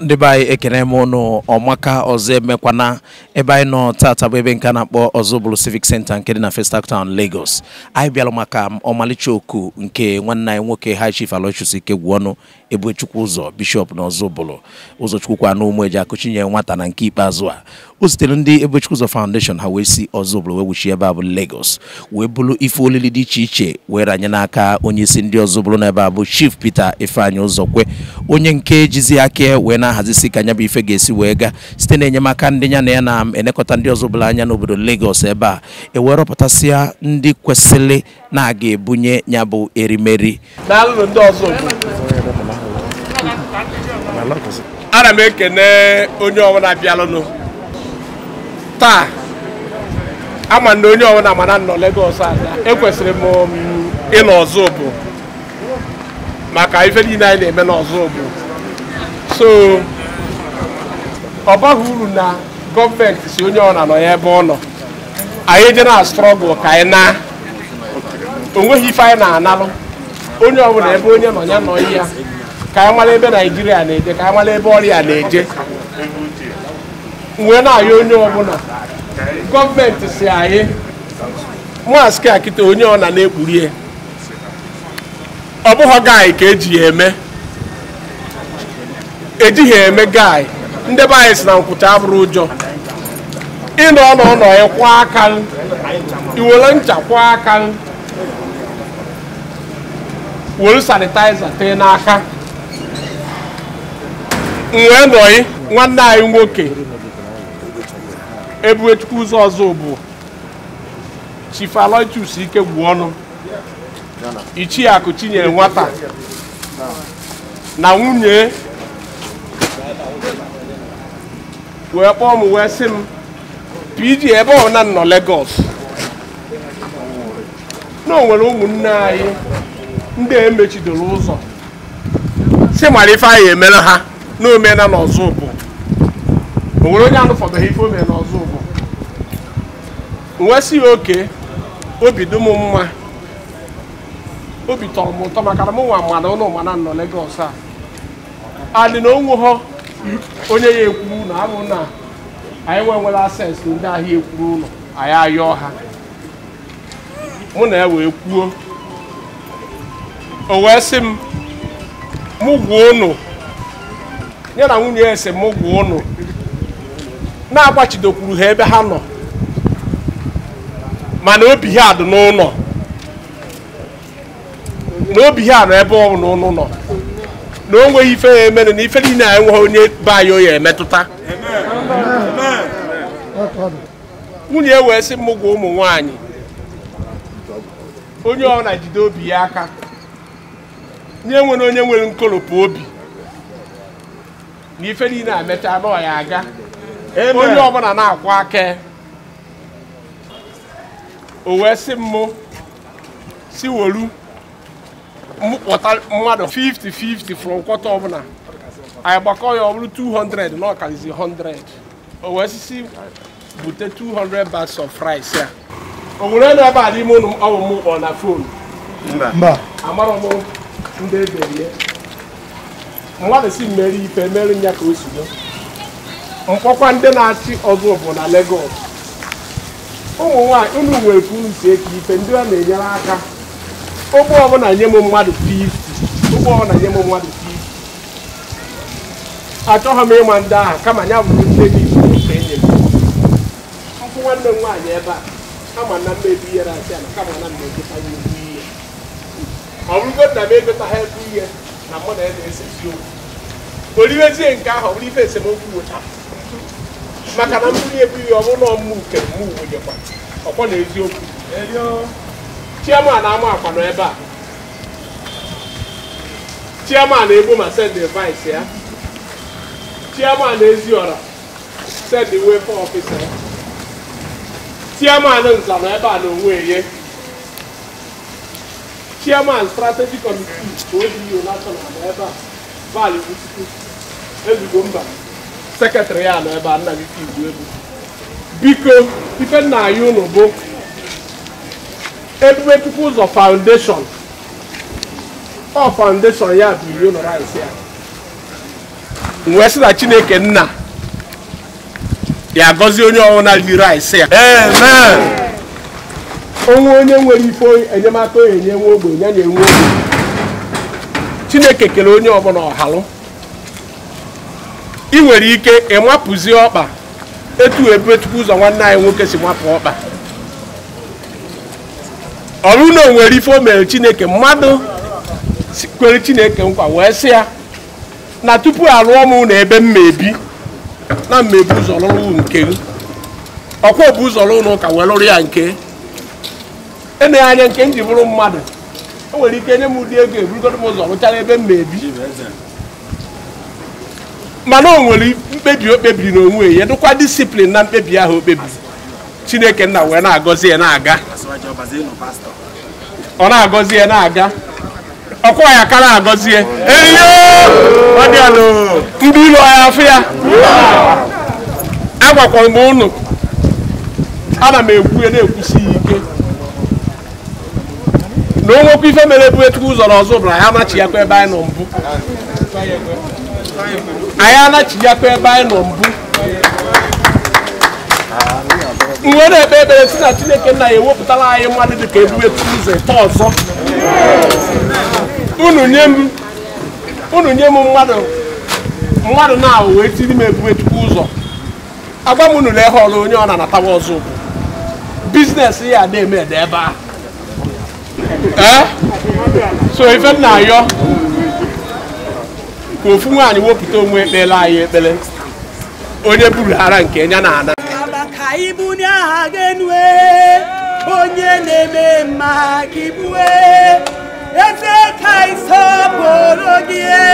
ndị be anyị ekene m ụnụ ọmaka ọzọ emekwana ebe anyị nọ tata bụ ebe nke a na-akpọ bụrụ Civic Center nke dị na first town Lagos anyị bịara maka ọmalịcha oku nke nwanne anyị nwoke High Chief ike Aloysius ọnụ ebechukwu ụzọ bishọp na ọzọbụlụ ụzọchukwukwa na ụmụ eji akụchinye nwata na nke ikpeazụ a o sitere ndị ebechukwu ụzọ foundation ha wee si ọzọbụlụ wee wuchi ebe a bụ legos wee bụrụ ife olili dị iche iche were ranye n'aka onye isi ndị ọzọbụlụ ebe a bụ chief Peter ụzọ Ụzọkwe onye nke jizi aka wee na-ahazisi ka anya bụ ife ga-esi wee gaa site na enyemaka ndị ya na ya na-enekọta ndị ọzọbụlụ anya n'obodo legos ebe a ewee rọpụtasịa ndị kwesịrị na-aga ebunye ya bụ erimeri ndị ana m ekene onye ọbụla bịalụnụ taa ama na onye ọbụla mana nọ Lagos ada ekwesịrị m ịnọ ọzọ bụ maka ife niile anyị na-eme n'ọzọ bụ so ọ baghị uru na gọọmenti si onye ọbụla nọ ya ebe ọ nọ anyị dị na strọgụl ka anyị na onweghi ife anyị na-analụ onye ọbụla ebe onye nọ ya nọ ya ka anyị mara ebe naijiria na-eje ka anyị mara ebe ọrịa na-eje wee na onye ọbụla gọọmenti si anyị maskị akịta onye ọ na na-ekpurie ọ bụghị gaị ka ejighị eme ejighị eme gaị ndị be anyị si na nkwụcha abụrụ ụjọ ịnọ n'ụlọ ya kwa aka iwere ncha kwa aka were sanitaiza tee n'aka wee nọyị nwanne anyị nwoke ebuechukwu ụzọ ọzọ bụ chief ike gwu ọnụ ichie akụ chinyere nwata na nwunye wee kpọọ m wee sị m pg ebe na nọ Lagos na onwere nwere ụmụnne anyị ndị emechidoro ụzọ si mara ife anyị emere ha na omena n'ọzọ bụ o nwere onye ha ife omena n'ọzọ bụ nwesị ya oke obi dị m mma obi tọrọ m ụtọ maka na m nwa mmadụ ụlọ mana nọ Lagos a adị na onwe ha onye ya ekwuru na abụ na anyị nwe nwere ases ndị ahịa ekwuru ụlọ anyị ayọọ ha mụ na ewe kwuo o wee sị m mụ gwuo ụnụ ya na nwunye esemokwu ụnụ na-agbachidokwuru ha ebe ha nọ mana obi ha dị n'ụlọ na obi ha nọ ebe ọ bụla ụnụ nọ na o nweghị ife ya emere na ife niile a enweghị onye be anyị oya emetụta nwunye wee sị mụgwọ ụmụ nwaanyị onye ọ na-ejide obi ya aka nye nwere onye nwere nkolopụ obi n'ife niile a mechaa na ya aga onye ọbụla na-akwụ aka o wee si mụ si wolu mkpọta mmadụ 50-50 from kwọta ọbụla anyị gbakọ ya ọ bụrụ 200 na ọkalizi 100 o wee si bute 200 bags of rice ya o nwere na ebe a n'ime ụlọ ọwụ m kpọ na fon amarọ m ndị eberie mmadụ si mmeri ife mere ya ka o si go mkpọkwa ndị na-achị ọzọ bụ na Lagos ụmụ nwanyị unu nwere ka unu si eke ife ndị ọ na-enyere aka ogbe ọbụla nye m mmadụ 50 ogbe ọbụla nye m mmadụ 50 achọghị m ịma ndị ahụ kama ya bụrụ nne dị ife enye m nkwụ nwanne m nwaanyị ebe a ama na mmebi ihere asị ala kama na mmejikwa ya ihe ọ bụrụgo nna m egotaghị ebe ihe na mụ na ya na-ese isiokwu oliwezie nke ahụ ọ bụrụ ife esemokwu wụcha maka na mmiri ebughị ọ bụrụ na ọmụ uke mụ wụnyekwa ọkwọ na eziokwu chiaman ama akwa nọ ebe a chiaman egbo ma send advice ya chiaman eziora send way for office ya chiaman nza nọ ebe a na onwe ye chairman strategic committee ka ODU national nọ ebe a vali Butikwu Ezigbo mba sekretarị ya nọ ebe a nna gị ka biko ife nna anyị ụnụ bụ ebube ụzọ foundation ọ foundation ya bụ iri ụlọ rice ya wee si na chineke nna ya gọzie onye ọwụna ri rice ya amen onwe onye nwere ife enyemaka onye nye nwe ogbe ya na enwe ogbe chineke kere onye ọbụla ọhalụ ị nwere ike ịmapụzi ọkpa etu ebe tupu ụzọ nwanne anyị nwoke si mapụ ọkpa ọrụ na onwere ife o mere chineke mmadụ kwere chineke nkwa wee sị ya na tupu alụọ m na ebe mma ebi na mmebi ụzọ lụrụ nke ọkwa bụ ụzọ lụrụ ụka wee lụrụ ya nke emeghe anya nke m bụrụ mmadụ o nwere ike nye m ụdị ego eburugoro m ụzọ rụchara ebe m na-ebi mana o nwere mkpebi o kpebiri n'onwe ya dịkwa disiplin na mkpebi ahụ o kpebiri chineke nna wee na-agọzi ya na-aga ọ na-agọzi ya na-aga ọkwa ya na-agọzi ya ndị ilu ya afọ ya agwakwara m ụnụ ana m ekwu ya na-ekwusi ike na onwekwa ife mere bụ etu ụzọ na ọzọ bụ na ya anachi yakwa ebe anyị nọ mbụ anyị anachi yakwa ebe anyị nọ mbụ nwe na-ekpe ekpere si na chineke nna ya ewepụtala anyị mmadụ dị ka ebu etu ụzọ ite ọzọ unu nye m mmadụ mmadụ na-awụ wee tiri m ebu etu ụzọ agwa m unu na ehe ọrụ onye ọ na-anatawa ọzọ bụ biznes ya na eme ede ebe ahụ ẹ so ife m na-ayọ ka ofu nwaanyị wepụta onwe ekpela anyị ekpele onye buru ara nke ya na ana onye na-eme mma ka ibue eze ka isọpụrụ gị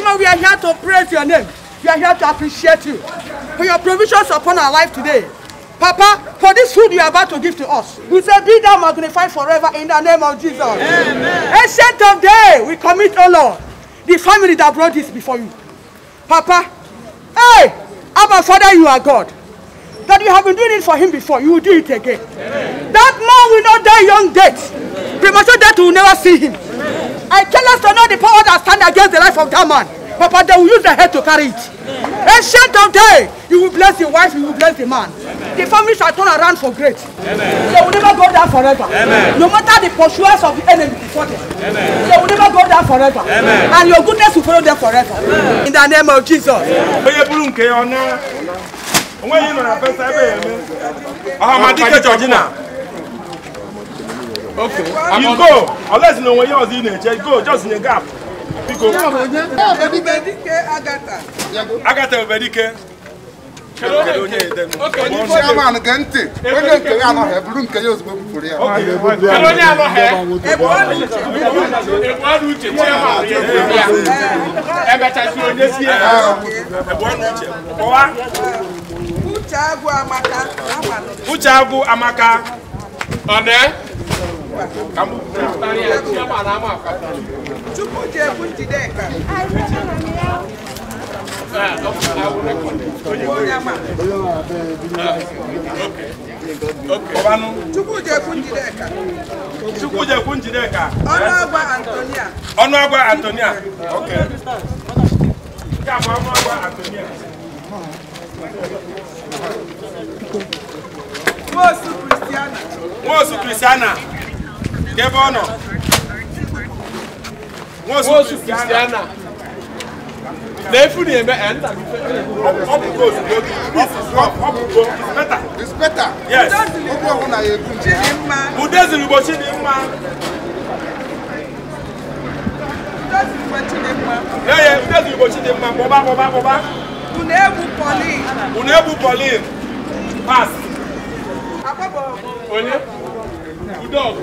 Adima, we are here to praise your name. We are here to appreciate you for your provisions upon our life today. Papa, for this food you are about to give to us, we say, Be thou magnified forever in the name of Jesus. Amen. Ancient of day, we commit, O Lord, the family that brought this before you. Papa, hey, Abba Father, you are God. That you have been doing it for him before, you will do it again. Amen. That man will not die young death. Premature death will never see him. I tell us to know the power that stand against the life of that man. Papa, they will use their head to carry it. Ancient of day, you will bless your wife, you will bless the man. Amen. The family shall turn around for great. Amen. They will never go down forever. Amen. No matter the pursuers of the enemy before them, Amen. they will never go down forever. Amen. And your goodness will follow them forever. Amen. In the name of Jesus. Amen. Okay. You go. Unless you know what yours is, just go. Just in the gap. Biko. Agata Obedike. Chairman Gente. Onye nke ya anọghị eburu nke ya ozugbo bufuru ya. Kedu onye anọghị? Ebuonu uche chairman ya. Ebechasị onye si ya. Ebuonu uche. Kọwa. Uche Agụ Amaka. Uche Agụ Amaka. Ọ na-e? Tupu ji ebu Njideka. Chukwu ji ekwu Njideka. Chukwu ji ekwu Njideka. Ọnụ agwa Antonia. Ọnụ agwa Antonia. Okay. Nke a bụ ọnụ agwa Antonia. Nwosu Kristiana. Nwosu Kristiana. débọ̀nà wọ́n sùn kìrìsìtìánà n'efuni eme ẹnta. ọpụpụ ozugbo ọpụpụ ọpụpụ inspector. inspector. yes. okwu ọbụla ya ekwu nje. udeziri ugbo chidimma. ya ya udeziri ugbo chidimma kpọba kpọba kpọba. unu egwu pọlin. unu egwu pọlin. pass. akpọbọ. onye. udo ọgụ.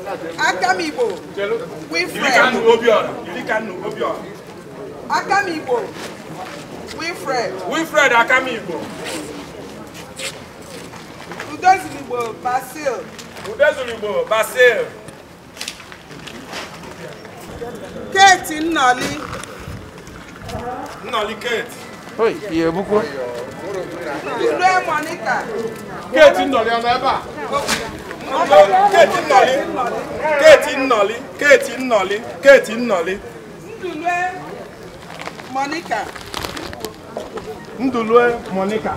Akamibo, Wilfred Akamigbo Wilfred Wilfred Akamigbo Udozigbo Basil Udozigbo Basil Kate Nali Nnọli Kate Oyi, iye bukwo. Ilu Monica. Kate Nnọli Nali, ebe a. keeti Nnọlị Keti Nnọlị Keti Nnọlị Keti Ndulue Monica Ndulue Monica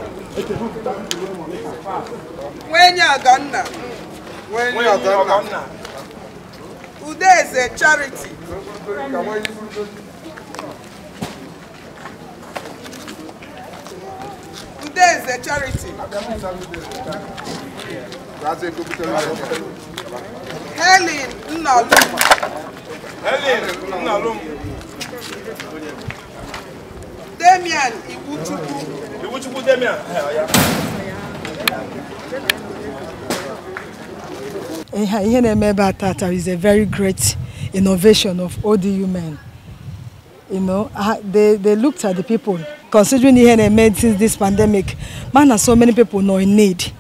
Nwenye Udeze Charity Helen Nalum. Helen Nalum. Damian Iwuchukwu. Iwuchukwu Damian. ihe na-eme ebe a tata is a very great innovation of ODU men. You know, they, they looked at the people, considering ihe na-eme since this pandemic, man, so many people know in need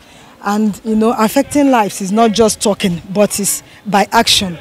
and you know affecting lives is not just talking but it's by action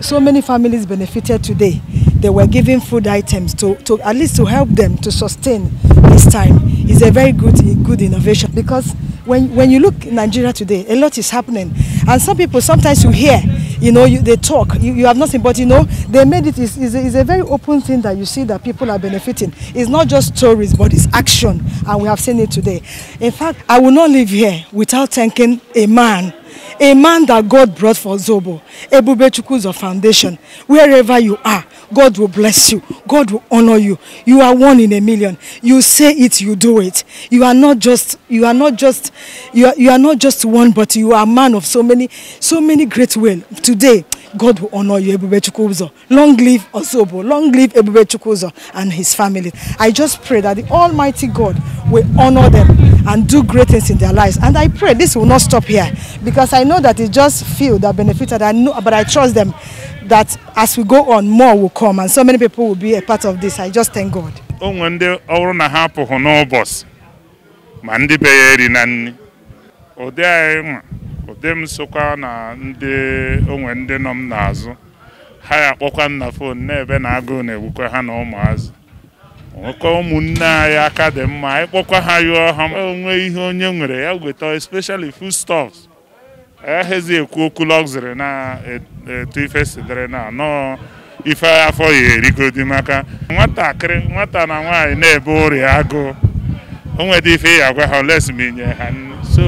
so many families benefited today they were giving food items to to at least to help them to sustain this time is a very good good innovation because when when you look in nigeria today a lot is happening and some people sometimes you hear you know you, they talk you, you have nothing but you know they made it is is a, a very open thing that you see that people are benefiting it's not just stories but it's action and we have seen it today in fact i will not live here without thanking a man a man that God brought for Zobo, Ebube Chukwuzo Foundation, wherever you are, God will bless you. God will honor you. You are one in a million. You say it, you do it. You are not just, you are not just, you are, you are not just one, but you are a man of so many, so many great will. Today, God will honor you, Ebube Chukwuzo. Long live Osobo. Long live Ebube Chukwuzo and his family. I just pray that the Almighty God will honor them and do great things in their lives. And I pray this will not stop here because I know that it just few that benefited. I know, but I trust them that as we go on, more will come and so many people will be a part of this. I just thank God. Ụdị m sokwa na ndị onwe ndị nọ m n'azụ ha ya akpọkwa na fon na na agụụ na-egbukwa ha na ụmụazị. nwekọ ụmụnne anyị aka dị mma anyị kpọkwa ha yụọ ha onwe ihe onye nwere ya weta especially foodstuffs Ahazi ekwu okwu luxury na-etu e, ife sidere na nọọ ife afọ ya erigodi maka nwatakịrị nwata na nwaanyị na-ebe ọrịa O onwede ife ya agwa ha olesminye ha so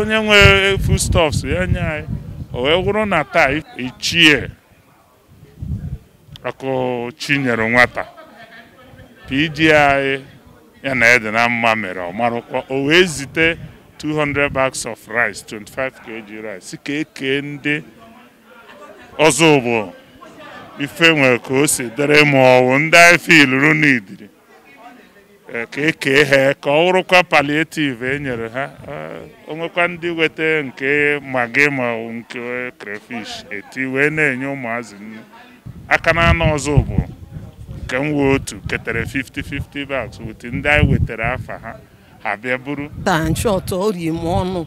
onye nwe foodstuffs ya nye anyị o wee wụrụ na taa ichie ọkụ chi nyere nwata PG anyị ya na ede na mma mere ọmarụkwa o wee zite 200 bags of rice 25 kg rice ka ekee ndị ọzọ bụ ife nwere ka o si dere ma ọwụ ndị anyị iluru n'idiri e, ka ekee ha ka ọ wụrụkwa palliative e nyere ha onwekwa ndị nweta nke magi ma nke crayfish eti wee na-enye ụmụazị aka n'anụ ọzọ bụ nke m wee otu ketere 50-50 bags wute ndị anyị wetara afa ha ha bịa buru danchọt orie m ọnụ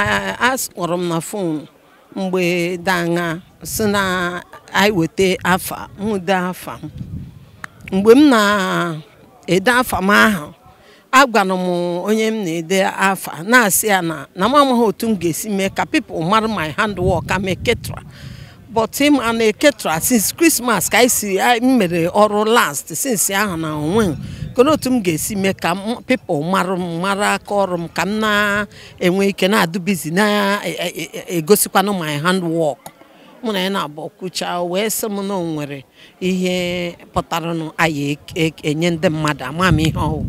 akpọrọ m na fonu mgbe danga si na anyị weta afa m afa m mgbe m na-ede afa m ahụ agwara m onye m na-ede afa na-asị ya na na m amaghị otu m ga-esi mee ka pipụl mara my handwork ameketra but him and Ketra since Christmas ka isi si mere ọrụ last since ahụ na onwe kedu otu m ga-esi mee ka pipo mara m mara aka ọrụ m ka m na-enwe ike na-adụ bizi na-egosikwanụ e, e, e, my handwork mụ na ya na-abụ kwucha wee sị m na nwere ihe pụtara anyị enye ndị mmadụ ama m ihe ọwụ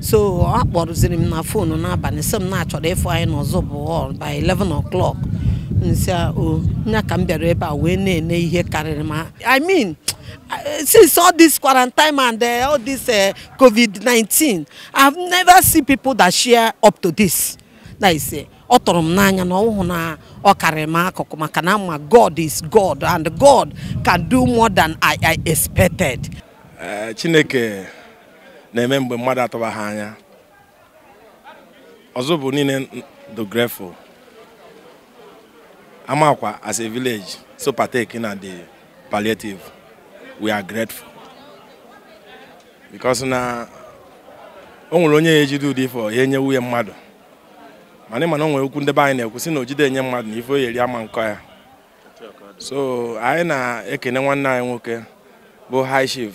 so ọ m na fonu n'abalị sị m na-achọrọ ịfụ anyị n'ọzọ bụ by 11 o'clock nsị o nya ka m bịara ebe a wee na-ene ihe karịrị ma i mean since all this quarantine and eh, all this eh, covid-19 i've never seen people that share up to this na ise eh, ọ tụrụ m n'anya na ọhụụ na ọ karịrị m akụkụ maka na ma god is god and god can do more than i i expected chineke na-eme mgbe mmadụ atụba ha anya ọzọ bụ niile the grateful Amakwa, as a village, so partaking na the palliative, we are grateful. Because na o nwere onye ejide ụdị ife ihe nye nwunye mmadụ mana ịma na o nwere okwu ndebe anyị na-ekwu si na ojide nye mmadụ na ife o ama nkọ ya so anyị na-ekene nwanne anyị nwoke bụ high chief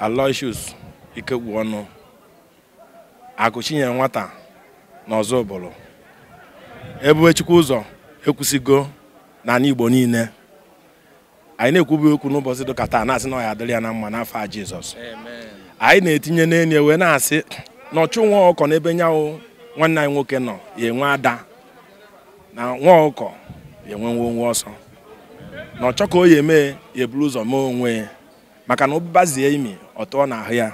Aloysius Ikegwu Ọnụ Akụ nwata na ebube chukwu ụzọ ekwusigo n'ala igbo niile anyị na-ekwubu okwu n'ụbọchị dịka taa na-asị na ọ ya adịrị ya na mma n'afọ a jizọs anyị na-etinye n'elu wee na-asị na ọchụ nwa ọkọ n'ebe nyanwụ nwanne anyị nwoke nọ ya enwe ada na nwa ọkọ ya enwe nwe onwe ọsọ na ọchọ ka o ya eme ya eburu ụzọ mee onwe maka na ụbazie imi ọ tụọ ahụ ya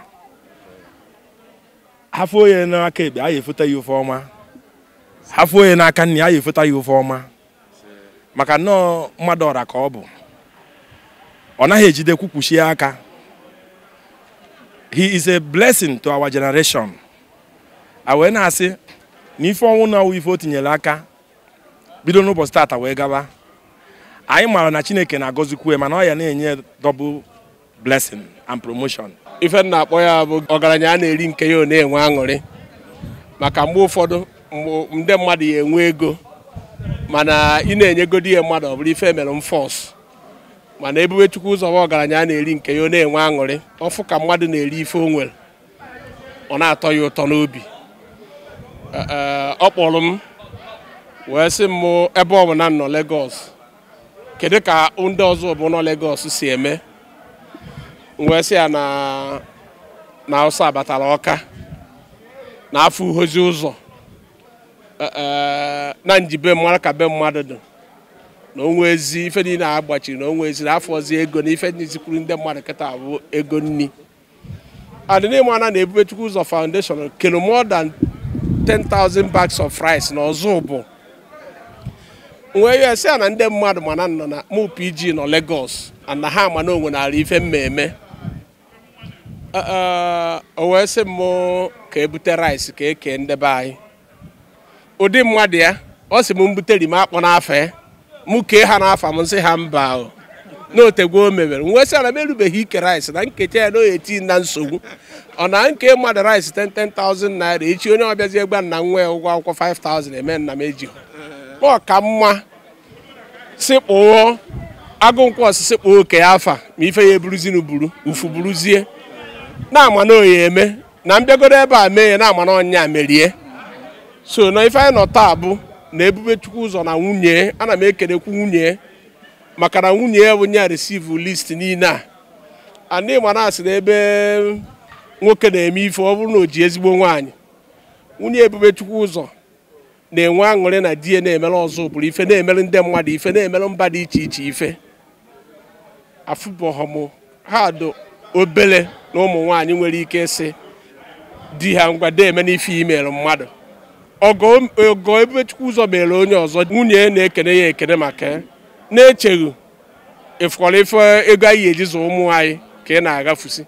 afọ onye n'aka ekpe anyị efute ya ofe ọma afọ onye na n'aka nna ya ya efota ya ofe ọma maka nnọọ mmadụ ọra ka ọ bụ ọ naghị ejide kwukwuchie aka he is a blessing to our generation a wee na-asị na ife ọnwụ na ife o tinyere aka bido n'ụbọchị tata wee gaba anyị maara na chineke na-agọzikwu mana ọ ya na-enye double blessing and promotion ife na-akpọ ya bụ ọgaranya a na-eri nke ya ọ na-enwe aṅụrị maka mgbe ụfọdụ nde mmadụ ya enwe ego mana ị na-enyegodi ihe mmadụ ọ bụrụ ife emere m fọs mana ebube chukwu ụzọ ọgaranya anya na-eri nke ya ọ na-enwe aṅụrị ọfụ ka mmadụ na-eri ife onwere ọ na-atọ ya ụtọ n'obi ọ kpọrọ m wee sị m ebe ọ bụ na nnọọ Lagos kedu ka ndị ọzọ bụ nọ Lagos si eme wee sị ya na Hausa batara ọka na afọ uhozi ụzọ Eh, eh, na njibe mara ka be mmadụ dị na onwe ezi ife niile a gbachiri na onwe ezi na afọzi ego na ife n'izikwuru ndị mmadụ kịta bụ ego nni adịnịmana na ebubechukwu ụzọ foundation kere more than 10,000 bags of rice na ọzọ bụ nwee ya sị na ndị mmadụ mana nọ na MUPG nọ na ha ma na onwe ife mmemme eh, o wee sị m ka ebute rice ka ekee ndebe anyị ụdị mmadụ ya ọ sị m butere m akpọ n'afọ mụ kee ha n'afọ m nsị ha mba n'otegwo o mebere wee sị ana m erubeghị ike rice na nkecha ya na oye na nsogbu ọ na nke mmadụ rice 10,000 naira echi onye ọbịazi egba nna nwa ya ụgwọ akwụkwọ 5,000 eme nna m eji ọ ka mma agụ agụnkwọ osisi kpụọ oke afa ma ife ya eburuzinu buru ufu buruzie na ama na eme na mbịagodo ebe a mee ya na ama na merie so na ife anyị nọ taa bụ na ebube chukwu ụzọ na nwunye ana m ekelekwu nwunye maka na nwunye ya bụ nye receive list niile a anị mana asị na ebe nwoke na-eme ife ọ bụrụ na o ji ezigbo nwaanyị nwunye ebube chukwu ụzọ na-enwe aṅụrị na di ya na-emere ọzọ bụrụ ife na-emere ndị mmadụ ife na-emere mba dị iche iche ife afụbohọm ha do obele na ụmụ nwaanyị nwere ike ịsị di ha ngwa eme n'ife imere mmadụ ogo ọgọ ebechukwu ụzọ mere onye ọzọ nwunye na-ekene ya ekene maka na-echeghị ịfọrọ ife ego anyị eji zụ ụmụ anyị ka ị na-agafusi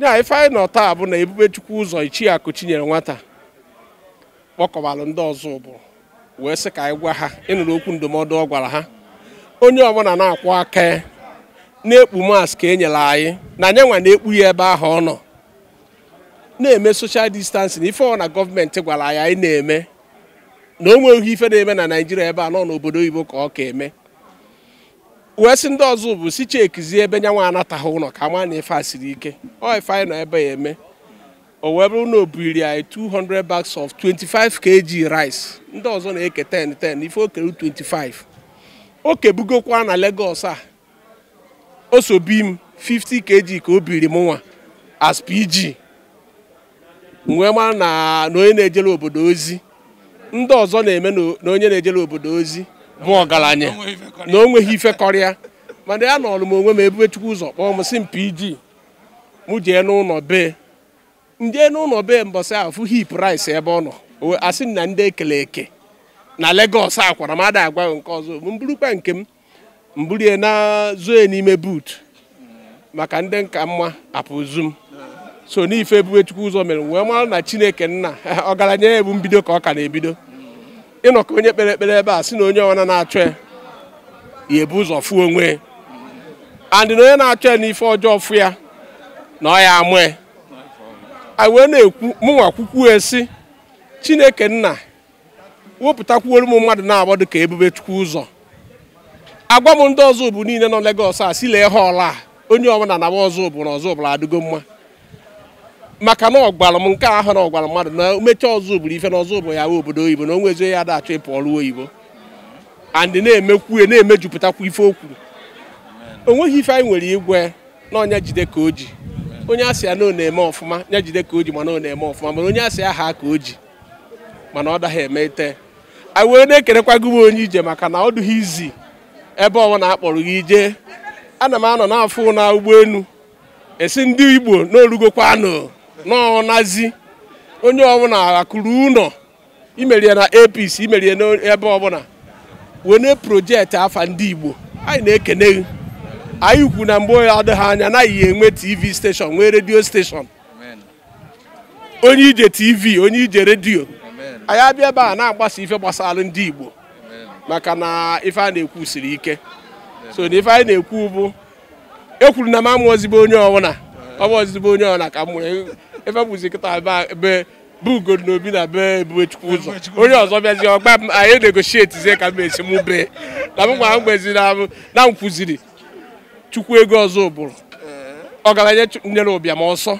ya ife anyị nọ taa bụ na ebube chukwu ụzọ ichie akụ nyere nwata kpọkọbalụ ndị ọzọ ụbụrụ wee sị ka anyị gwa ha ịnụrụ okwu ndụmọdụ ọ gwara ha onye ọbụla na-akwụ aka na-ekpu mask ka e nyere anyị na anya nwa na-ekpu ya ebe ahụ ọ nọ na-eme social distancing ife ọ na gọọmenti gwara anyị anyị na-eme na o nweghị ife na-eme na naijiria ebe a nọ n'obodo oyibo ka ọ ka eme wee ndị ọzọ bụ si chekizie ebe nyanwa anataghị ụlọ ka ma na a siri ike ọ ife anyị nọ ebe ya eme o wee bụrụ na o anyị 200 bags of 25 kg rice ndị ọzọ na-eke 10 10 ife o kere 25 o kebugokwa na Lagos a osobi m 50 kg ka o biri m nwa as PG wee mara na onye na-ejere obodo ozi ndị ọzọ na-eme na onye na ejele obodo ozi bụ ọgaranya na o nweghị ifekọrịa mana ya nọọrụ m onwe m ebube chukwu ụzọ kpọọ m si mpiji mụ jee n'ụlọ be ndị n'ụlọ be mbọsị ahụ fụ hip rice ebe ọ nọ asị na ndị ekele eke na Lagos akwara m ada agwa nke ọzọ m burukwa nke m mburie na zoe n'ime buut maka ndị nka mma m so n'ife chukwu ụzọ mere wee mara na chineke nna ọgaranya ya ebu mbido ka ọ ka na-ebido ịnọkọ onye kpere ekpere ebe a si na onye ọwana na-achọ ya ebu ụzọ fụ onwe andị na onye na-achọ ya n'ife ọjọọ fụ ya na ọ ya amụ ya anyị wee na-ekwu mụnwa kwukwu esi chineke nna wepụtakwuoro m mmadụ na agba dị ka ebubechukwu ụzọ agwa m ndị ọzọ bụ niile nọ legos a si lee ha ọla a onye ọbụla na ọzọ bụ na ọzọ bụla adịgo mma maka na ọgwara m nke ahụ na ọgwara mmadụ na mechaa ọzọ bụrụ ife na ọzọ bụ ya obodo oyibo na onwezi ezo ya ịpụ ọrụ oyibo andị na-emekwu na-emejupụtakwa ife okwu onweghị ife anyị nwere igwe na ọnya jide ka o ji onye asị ya na ọ na-eme ọfụma ya jide ka o ji mana ọ na-eme ọfụma mana onye asị aha ka o ji mana ọ daghị eme ite anyị wee na-ekerekwa gị m onye ije maka na ọ dụghị izi ebe ọnwa na-akpọrọ gị ije ana m anọ n'afọ na ụgbọelu esi ndị igbo na orugokwanụ n'ọnazi onye ọbụla akụrụ ụlọ imerie na apc imerie n'ebe ọbụla na projekti afa ndị igbo anyị na-ekene anyị kwu na mgbe adịghị anya anaghị enwe tv steshọn nwee redio steshọn onye ije tv onye ije redio anyị abịa ebe a na-agbasa ife gbasara ndị igbo maka na ife a na-ekwu siri ike so na ife anyị na-ekwu bụ ekwuru na m amụ ozigbo onye ọbụla ọ bụ onye ọbụla ka m efebụzi kịta be ugo na obi na be chukwu ụzọ onye ọzọ bịazi ọgba m anyị na zie ka m esi m bee na m gwa m na m na m chukwu ego ọzọ ụbụrụ ọgaranya nyere ụbịam ọsọ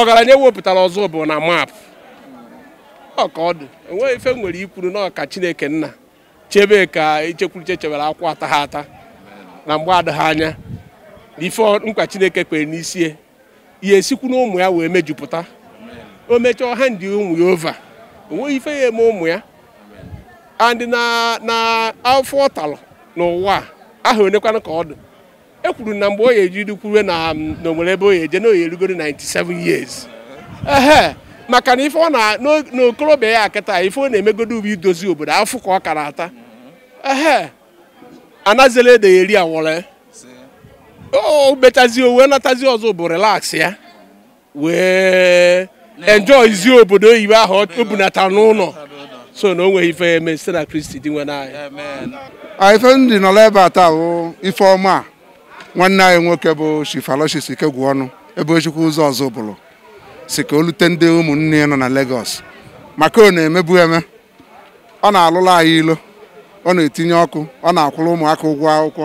ọgaranya wepụtara ọzọ ụbụrụ na maapụ ọka dị enweghị ife nwere ikwuru na ọka chineke nna chebe ka ichekwuruche chebere akwụ ata ha ata na mgbe adịghị anya na ife nkwa chineke kwere n'isi e. ya esikwu ụmụ ya wee mejupụta o mechaa ha ndị ụmụ ya ova nweghị ife ya eme ụmụ ya and na afọ ọ n'ụwa ahụ onekwana ka ọ dị e kwuru na mgbe o ya ejiri na na ebe o ya eje na oyi erugoro 97 years ehe maka na ife ọ na n'okorobịa ya akịta ife ọ na-emegodo ubi idozi obodo afọ ka ọ kara ata ehe anazela ede ya eri awọrọ o oh, mechazie wee natazie ọzọ bụ relax ya we wee izi obodo oyibo ahụ o bunata n'ụlọ so na o nweghị ife eme site na kristi dị nwe n'anya ah, ife m dị nọla ebe a taa bụ ifeọma nwanne anyị nwoke bụ shifaloshis ikegwu ọnụ ebe ochukwu ụzọ ọzọ bụrụ si ka o lute ndị ụmụnne nọ na Lagos maka ọ na-emebu eme ọ na-alụla anyị ilo ọ na-etinye ọkụ ọ na-akwụrụ ụmụaka ụgwọ akwụkwọ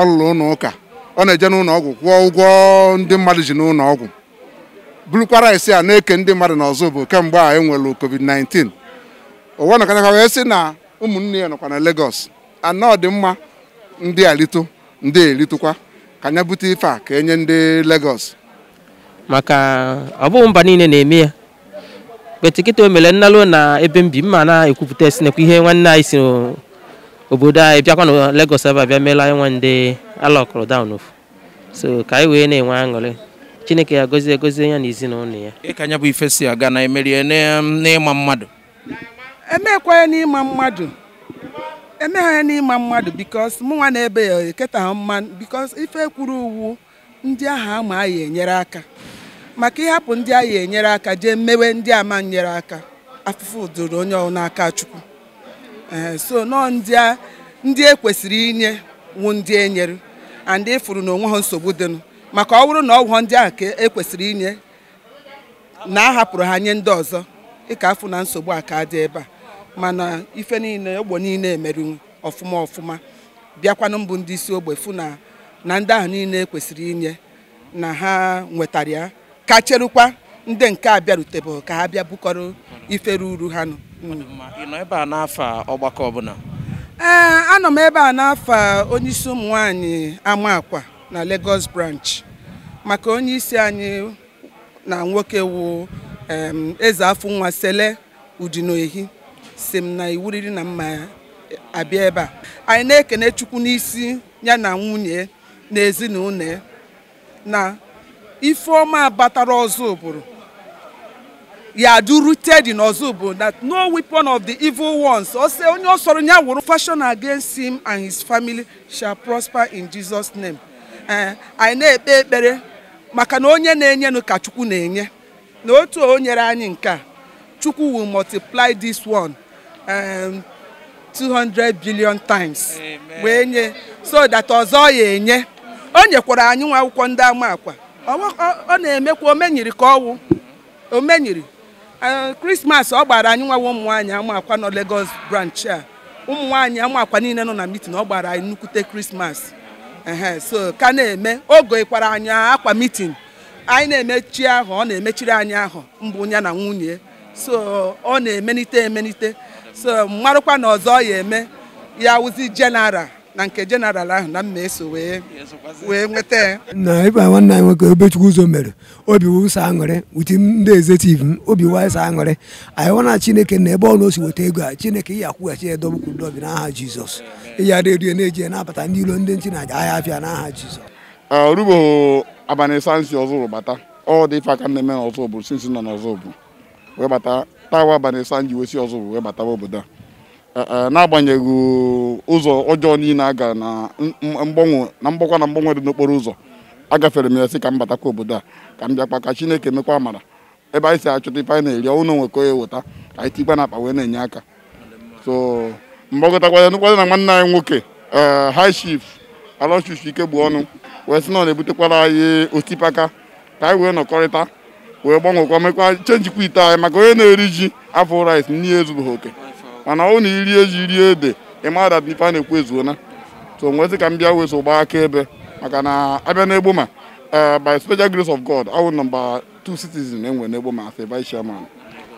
ọ lụrụ ụnụ ụka ọ na-eje n'ụlọ ọgwụ kwụọ ụgwọ ndị mmadụ ji n'ụlọ ọgwụ bụrụkwara isi a na-eke ndị mmadụ n'ọzọ bụ kemgbe a enwere covid-19 ụwa nọkanaka wee sị na ụmụnne ya nọkwa na Lagos ọ dị mma ndị alito ndị eritukwa ka anya bute ife a ka enye ndị Lagos maka ọ bụghị mba niile na-eme ya kpetikịta o mere nnalụ na ebe mbi mma na-ekwupụta esinekwa ihe nwanne anyị si obodo anyị bịakwa na legos ebe a bịa meela nwa ndị ala ọkọrọ daa ofu so ka anyị wee na-enwe aṅụrị chineke ya gozie gozie ya na ezinụlọ ya ịka anya bụ ife si aga na emerie n'ịma mmadụ emekwa ya n'ịma mmadụ emegha ya n'ịma mmadụ bikos mụnwa na-ebe ya eketa ha mma bikos ife kwuru uwu ndị ahụ ama anyị enyere aka maka ịhapụ ndị anyị enyere aka jee mmewe ndị ama nyere aka afụfụ doro onye n'aka chukwu eh, so nọọ ndị e kwesịrị inye wụ ndị enyere and efuru na onwe ha nsogbu dịnụ maka ọ bụrụ na ọgwụ ndị ahụ ka e kwesịrị inye na a hapụrụ ha nye ndị ọzọ ịka afụ na nsogbu a ka dị ebe a mana ife niile ogbe niile emerinwu ọfụma ọfụma bịakwanụ mbụ ndị isi ogbe fụ na na ndị ahụ niile ekwesịrị inye na ha nwetara ya ka cherukwa ndị nke a bịarutebeghị ka ha bịa bukọrọ ife ruru ha nọ ebe a n'afọ ọgbakọ ọbụla ee eh, anọ m ebe a n'afọ onyeisi ụmụ nwanyị ama na Lagos branch maka onyeisi anyị na nwoke wu eze afọ nwa sele udinoehi si m na iwuriri na mma abịa ebe a anyị na-ekene chukwu n'isi ya na nwunye na ezinụlọ na ife ọma batara ọzọ ụbụrụ yadu rooted in Ozubu that no weapon of the evil ones ose onye ọsọrọ ya wụrụ fashion against him and his family shall prosper in Jesus name eh, anyị na-ekpe ekpere maka na onye na-enyenụ ka Chukwu na-enye na otu o nyere anyị nke a Chukwu will multiply this one um, 200 billion times wee nye so that ọzọ ya enye o nyekwara anyị nwa akwụkwọ ndị ama akwa ọ na-emekwa omenyiri ka ọwụ omenyiri krismas eh, ọ gbara anyị nwa ụmụ nwaanyị amakwa nọ Lagos branch a ụmụ nwaanyị amakwa niile nọ na mitin ọ gbara anyị nnukwute krismas so ka na-eme oge ịkwara anyị akwa mitin anyị na-emechi ahụ ọ na-emechiri anyị ahụ mbụ ya na nwunye so ọ na-emenite emenite so mmarụkwa na ọzọ ya eme ya wụzi jenaral na nke jenaral ahụ na mma eso wee wee nweta na ịba nwanne anyị nwoke Obechukwu ụzọ mere obi wụsa aṅụrị uti ndị ezetivu m obi wasa aṅụrị anyị wana Chineke na ebe ọ na osi weta ego a Chineke ya akwụghachi ya dobukwu ndọbi n'aha Jizọs ịya redio na-eji na-abata ndị ilo ndị nchi na-aja ahịa afịa n'aha Jizọs orugbo abalị sansi ọzọ bata ọ dị ife aka na-eme n'ọzọ bụ sinsi nọ n'ọzọ bụ wee bata tawa abalị sanji wesi ọzọ bụ wee batawa obodo a Eh, eh, n'agbanyeghị ụzọ ọjọọ niile aga na mgbanwe na mgbakwa na mgbanwe dị n'okporo ụzọ agafere m ya sị ka m batakwa obodo a ka m bịakwa ka Chineke mekwa amara ebe anyị si achọta ife anyị na-eri ọnwụ na ka onye eweta ka anyị tikwa na akpa wee na-enye aka so mgbakọtakwa ya nụkwado na nwanne anyị nwoke eh, high chief alọchichi ike bụ ọnụ wee sị na ọ na-ebutekwara anyị osipaka ka anyị wee nọkọrịta wee gbanwekwa mekwa chenjikwa ite anyị maka onye na-eri ji afọ rice n'ihe ezubeghị oke mana ọ na e ji rie ede ịma dat ife a na-ekwu ezuona so nwezi ka m bịa wee so gbaa akaebe maka na abịa n'egbo ma eh, by special grace of God awụ nọmba two citizen enwe n'egbo ma as vice chairman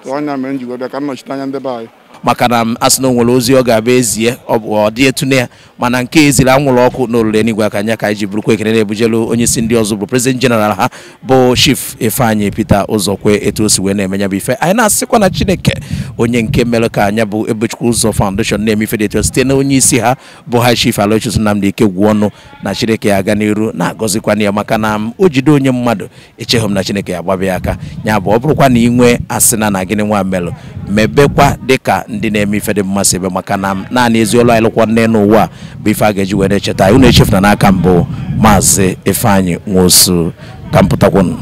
so anya mere m ji bịa ka m nọchite anya ndị be anyị maka na asị na o nwere ozi ọ ga-abụ ezie ọ dị na ya mana nke eziri anwụrụ ọkụ na olulu enigwe aka anya ka anyị bụrụkwa ekene na-ebujelu onye isi ndị ọzọ bụ prezident jeneral ha bụ chief ifeanyị peter ụzọkwe etu o si wee na-eme ya bụ ife anyị na-asịkwa na chineke onye nke mere ka anya bụ ebechukwu ụzọ foundation na-eme ife dị etu site na onye isi ha bụ ha chief alochis nnamdị ike gwuo ọnụ na chineke ya aga n'iru na na ya maka na o jide onye mmadụ echeghị m na chineke ya agbabịa aka ya bụ ọ bụrụkwa na ị nwee asị na na gịnị nwa melụ mebekwa dịka ndị na-eme ife dị mmasị ebe maka na naanị ezi olu anyị nne n'ụwa bụ ife a ga-eji wee na-echeta unu na n'aka mbụ maazị Ifeanyi Nwosu ka m pụtakwunu